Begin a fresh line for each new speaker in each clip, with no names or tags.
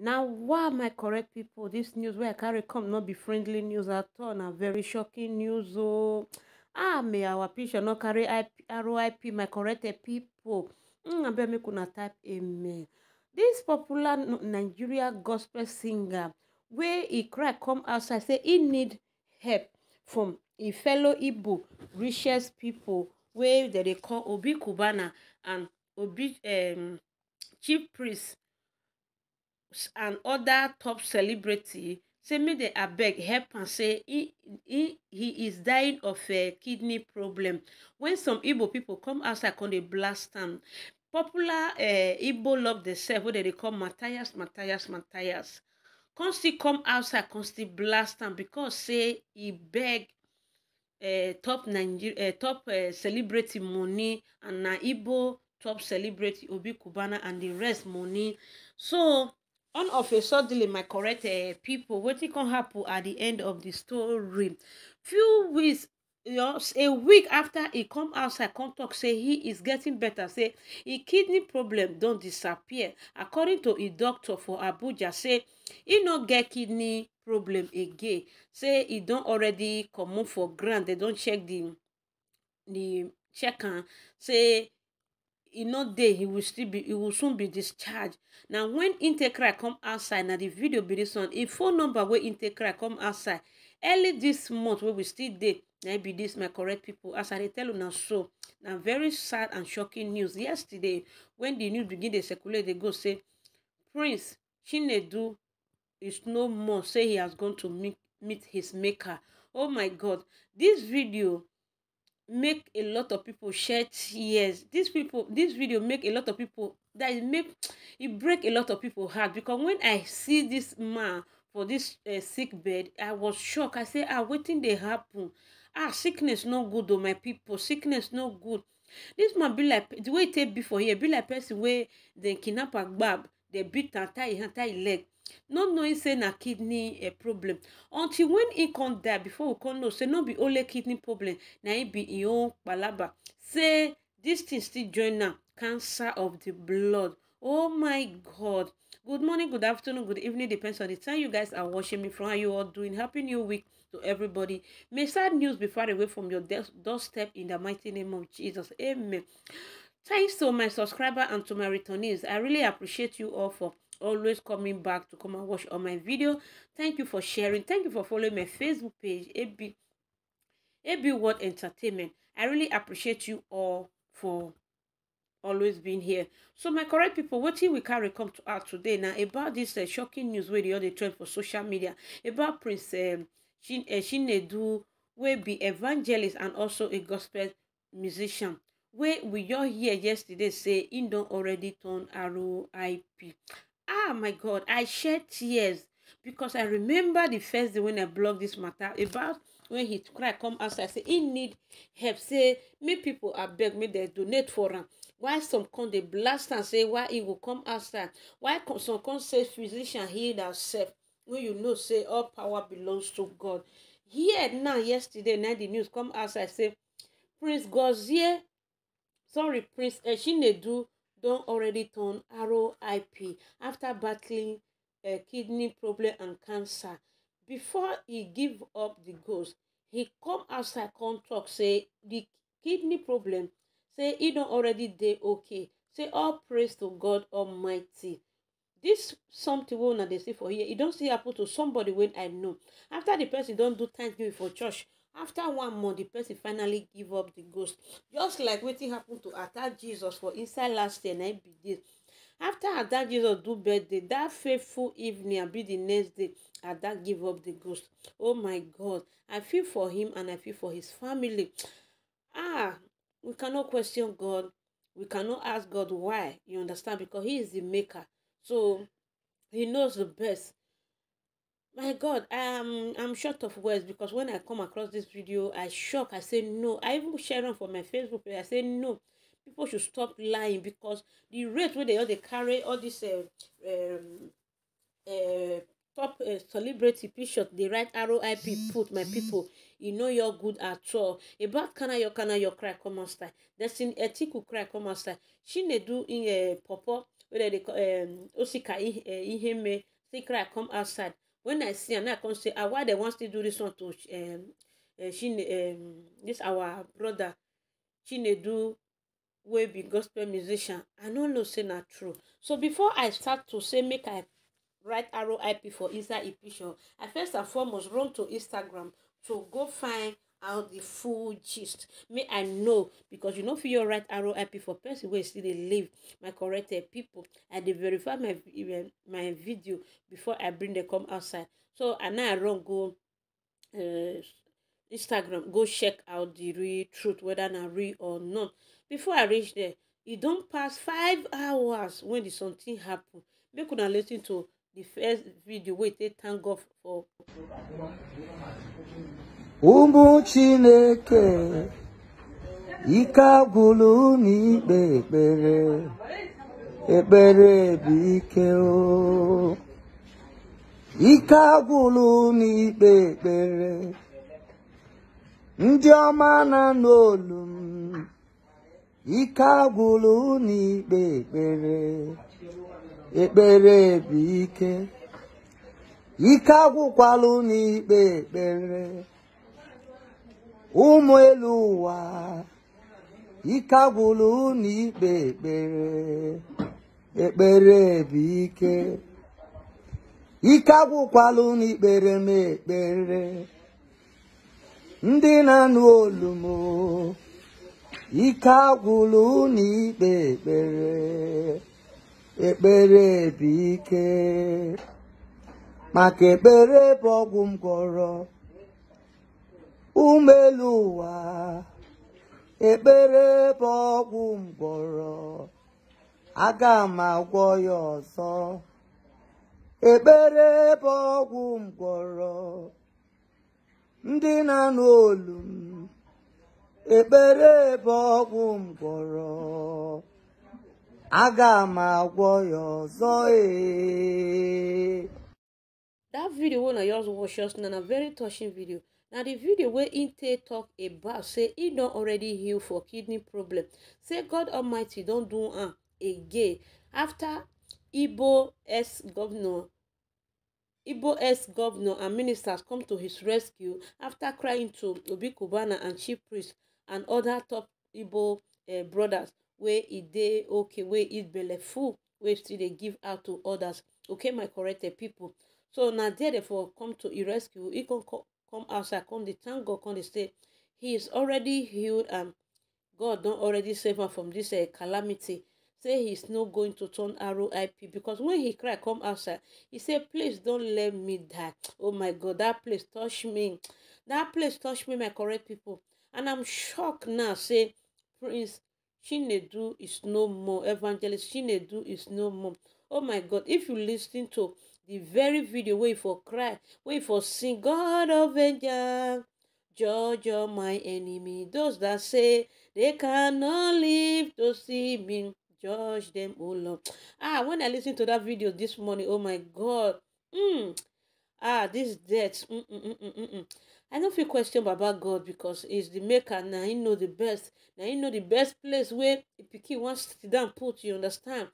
Now, why my correct people? This news where i carry come not be friendly news at all na very shocking news Oh, ah may our picture not carry roip my correct pipo abeg make una type amen This popular nigeria gospel singer where he cry come outside say he need help from a e fellow igbo richest people. Where they dey call obi Kubana and obi um chief priest and oda top celebrity say make dem abeg help am say he he he is dying of a kidney problem wen some igbo pipo come outside come dey blast am popular uh, igbo love themselves wey dem dey call matthias matthias matthias come still come outside come still blast am because say e beg uh, top nigeria uh, eh, top uh, celebrity money and na igbo top celebrity obi Kubana and the rest money so on of a suddenly my correct uh, people wetin come happen at the end of the story few weeks you a week after he come outside come talk say he is getting better say his kidney problem don't disappear according to a doctor for abuja say he no get kidney problem again say he don't already come for grant. They don't check the the check am say e no dey he will still be He will soon be discharged na wen intekra come outside na the video be dis one e phone number wey intekra come outside early this month wey we still dey na e be dis my correct people. as i dey tell una so na very sad and shocking news yesterday when the news begin dey circulate dey go say prince chinedu is no more say he has gone to meet meet his maker oh my god This video make a lot of people shed tears These people this video make a lot of people that it make it break a lot of people heart because when i see this man for this uh, sick bed i was shocked i say ah wetin dey happen ah sickness no good o oh, my people sickness no good this man be like the way e take before here be like person where they kidnap and bab. They beat am tie e tie e leg not knowing say na kidney uh, problem until when e come die before we come know say no be only kidney problem na e be im own palaba say this thing still join am cancer of the blood oh my god good morning good afternoon good evening depends on the time you guys are watching me from how you all doing happy new week to everybody may sad news be far away from your doorstep in the mighty name of jesus amen thanks to my subscriber and to my returnees i really appreciate you all for always coming back to come and watch all my video thank you for sharing thank you for following my facebook page ab ab world entertainment i really appreciate you all for always being here so my correct people what wetin we carry come to out today Now about dis uh, shocking news where di other trend for social media about prince um, uh, chinedu wey be evangelist and also a gospel musician Where we all hear yesterday say im don already turn rip ah my god i shed tears because i remember the first day when i blogged this matter about when he cry come outside say he need help say make people are beg me. They donate for him. why some come dey blast and say why he will come outside why some come say physician heal ourselves? when you know say all power belongs to god here now yesterday now the news come outside say prince gozie sorry prince eshinedu eh, don already turn ROIP after battling a eh, kidney problem and cancer. Before he give up the ghost, he come outside come talk say the kidney problem say he don already dey okay. Say all praise to God Almighty. This something will not they see for here, e don't see happen to somebody when I know. After the person don't do thanksgiving for church, after one month the person finally give up the ghost just like wetin happen to ada jesus for inside last year na im be this after ada jesus do birthday that faithful evening be the next day ada give up the ghost oh my god i feel for him and i feel for his family ah we cannot question god we cannot ask god why you understand because he is the maker so he knows the best my god um i'm short of words because when i come across this video i shock i say no i even share am for my facebook page i say no people should stop lying because the rate where they all they carry all this uh, um, uh, top uh, celebrity picture dey write roip put my people you e know you're good at all about kana your kana your cry come out style destin etiku cry come out style do in uh, popo wey dem dey call um, osika eh, iheme say cry come outside when i see am now i come say ah why dem wan still do dis one to um, uh, um, chine um, this our brother chinedu wey be gospel musician i no know say na true so before i start to say make i write rip for inside e i first and foremost run to instagram to go find out the full gist May i know because you know fit your right write rip for person where still they live my corrected people i they verify my eh, my video before i bring dem come outside so and now i run go uh, instagram go check out the real truth whether na real or not before i reach there it e don't pass five hours when the something happen make una lis ten to the first video Wait, e take thank god for.
ụmụ chineke ike agwụlụ n'ikpe ekpere ekpere bụ ike o ike agwụlụ n'ikpe ekpere ndị ọma na n'olu m ike agwụlụ n'ikpe ekpere ekpere bụ ike ike agwụkwalụ n'ikpe ekpere ụmụ elu ụwa ike agwụrụ unu ikpe ekpere ekpere bụ ike ike agwụkwala unu ikpere m ekpere ndị na-anụ olu m ike agwụrụ unu ikpe ekpere ekpere bụ ike maka ekpere bụ ọgwụ m gwọrọ umelu ụwa ekpere bụ ọgwụ mgbọrọ aga m agwọ ya ọzọ ekpere bụ ọgwụ mgbọrọ ndị na n'olu m ekpere bụ ọgwụ mgbọrọ aga m agwọ ya ọzọ ee
that video wey na yours watch just now na very touching video na the video wey im take tok about say he don already heal for kidney problem say god almighty don't do am again After Ibo S governor, Ibo S governor and ministers come to his rescue after crying to Obi Kubana and chief priest and other top Ibo uh, eh, brothers where e dey okay wey e belle full where still they give out to others okay my corrected people so na there dey come to e rescue He can call come outside come dey thank god come they say he is already healed and god don't already save am from dis eh, calamity say he's no going to turn roip because when he cried, come outside he said, please don't let me die oh my god that place touch me That place touch me my correct people." and i'm shocked now say prince chinedu is no more evangelist chinedu is no more oh my god if you lis to The very video wey e for cry wey e for sing god of angel judge all my enemy those that say they cannot live to see me judge them. Oh lord ah when i lis ten to that video this morning oh my god mm. ah this death mm, mm -mm -mm -mm -mm. i no fit question baba god because he's the maker na he know the best na he know the best place wey pikin wan sit down put you understand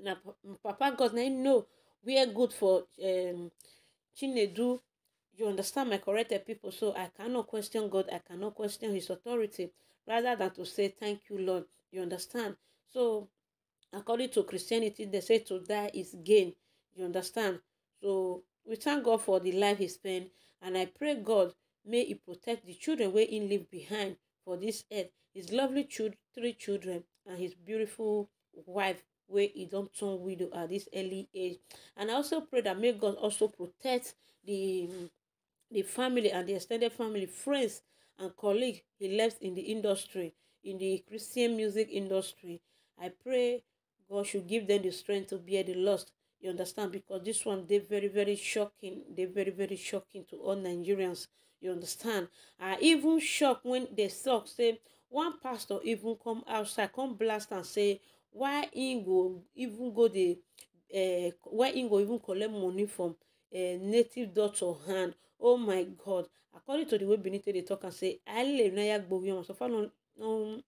na papa god na he know wear good for um, Chinedu. You understand my corrected people, so I cannot question God. I cannot question His authority rather than to say thank you, Lord. You understand? So, according to Christianity, they say to die is gain. You understand? So, we thank God for the life He spent, and I pray God may He protect the children where He leave behind for this earth. His lovely child, three children and His beautiful wife wey he don turn widow at this early age and i also pray that may god also protect the the family and the extended family friends and colleagues he left in the industry in the christian music industry i pray god should give them the strength to bear the loss you understand because this one they very very shocking They very very shocking to all nigerians you understand i even shocked when they talk say one pastor even come outside come blast and say why im go even go the, uh, why im go even collect money from uh, native daughter hand oh my god according to the way benin dey talk am say aleluya gbogbo yam so far no no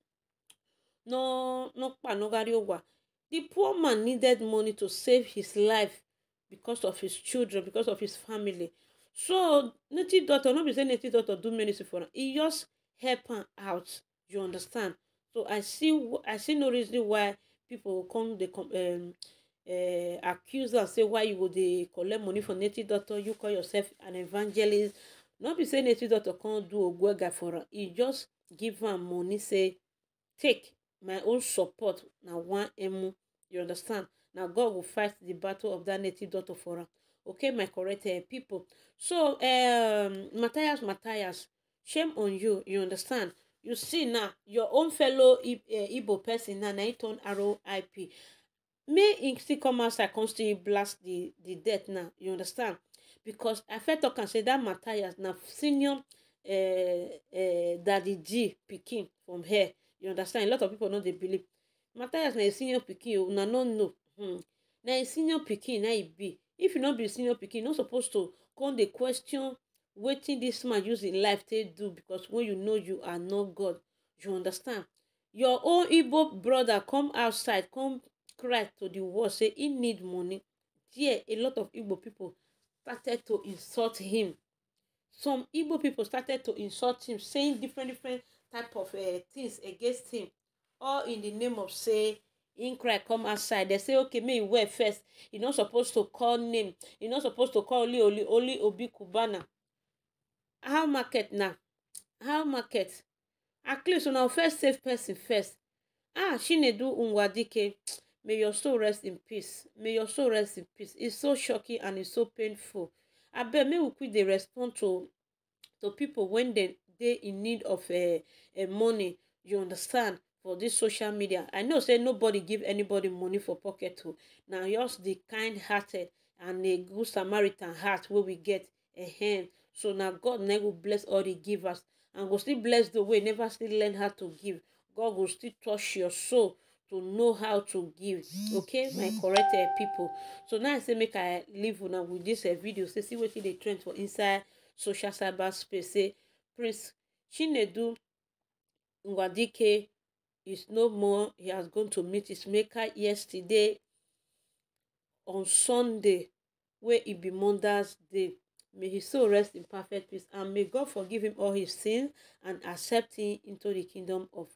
no no panogari owa the poor man needed money to save his life because of his children because of his family so native daughter, no be saying native daughter do many for am e just help am out you understand so i see i see no reason why People come they come, um, uh, accuse and say why you go dey collect money from native doctor you call yourself an evangelist not be say native doctor come do a good guy for her. e just give am money say take my own support Now one emu you understand Now god will fight the battle of that native daughter for her. okay my correct uh, people so um, matthias matthias shame on you you understand you see now your own fellow eh, igbo person na na him e turn roip may him still come outside come still blast the the death now you understand because i felt I can say that matthias na senior uh, uh, daddy g picking from here you understand a lot of people know they believe matthias na senior picking. o na no know hmm. na senior picking na e be if you not be senior picking, you no suppose to come The question wetin this man use im life to do because when you know you are not god you understand your own igbo brother come outside come cry to the world say he need money there a lot of igbo people started to insult him some igbo people started to insult him saying different different type of eh, things against him all in the name of say in cry come outside They say okay make him first e not supposed to call name e not supposed to call only only obi kubana how market now? how market at least una first safe person first ah she chinedu nwadike may your soul rest in peace may your soul rest in peace it's so shocking and it's so painful I bet me we quit the respond to to people when they they in need of uh, uh, money you understand for this social media i know say nobody give anybody money for pocket too. Oh. Now just the kind hearted and a good samaritan heart where we get a hand so now god never go bless all the givers and go still bless the way never still learn how to give god will still touch your soul to know how to give okay my correct eh, people. so now i say make i leave now with this dis eh, video say see what they trend for inside social cyber space say prince chinedu ngwadike is no more he has gone to meet his maker yesterday on sunday where e be Mondays day May his soul rest in perfect peace. And may God forgive him all his sins and accept him into the kingdom of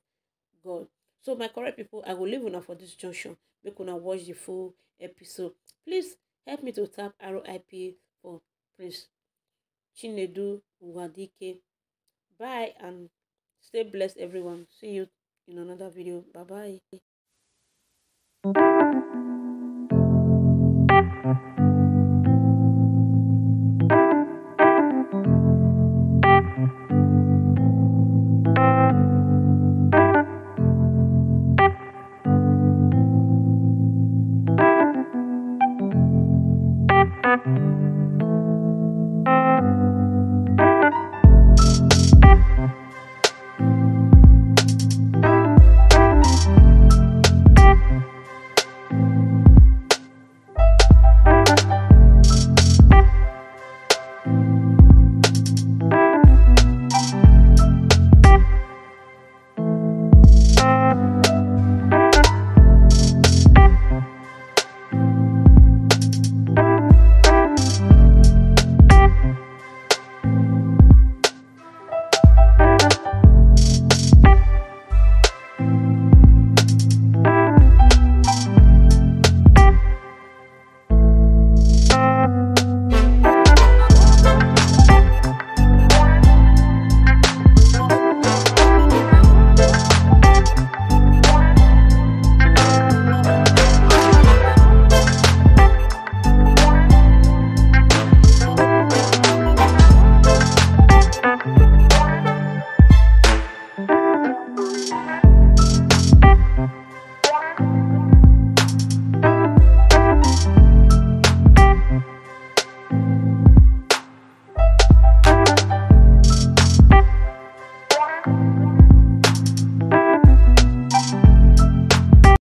God. So, my correct people, I will leave now for this junction. Make una watch the full episode. Please help me to tap RIP for Prince Chinedu Nwadike. Bye and stay blessed, everyone. See you in another video. Bye bye.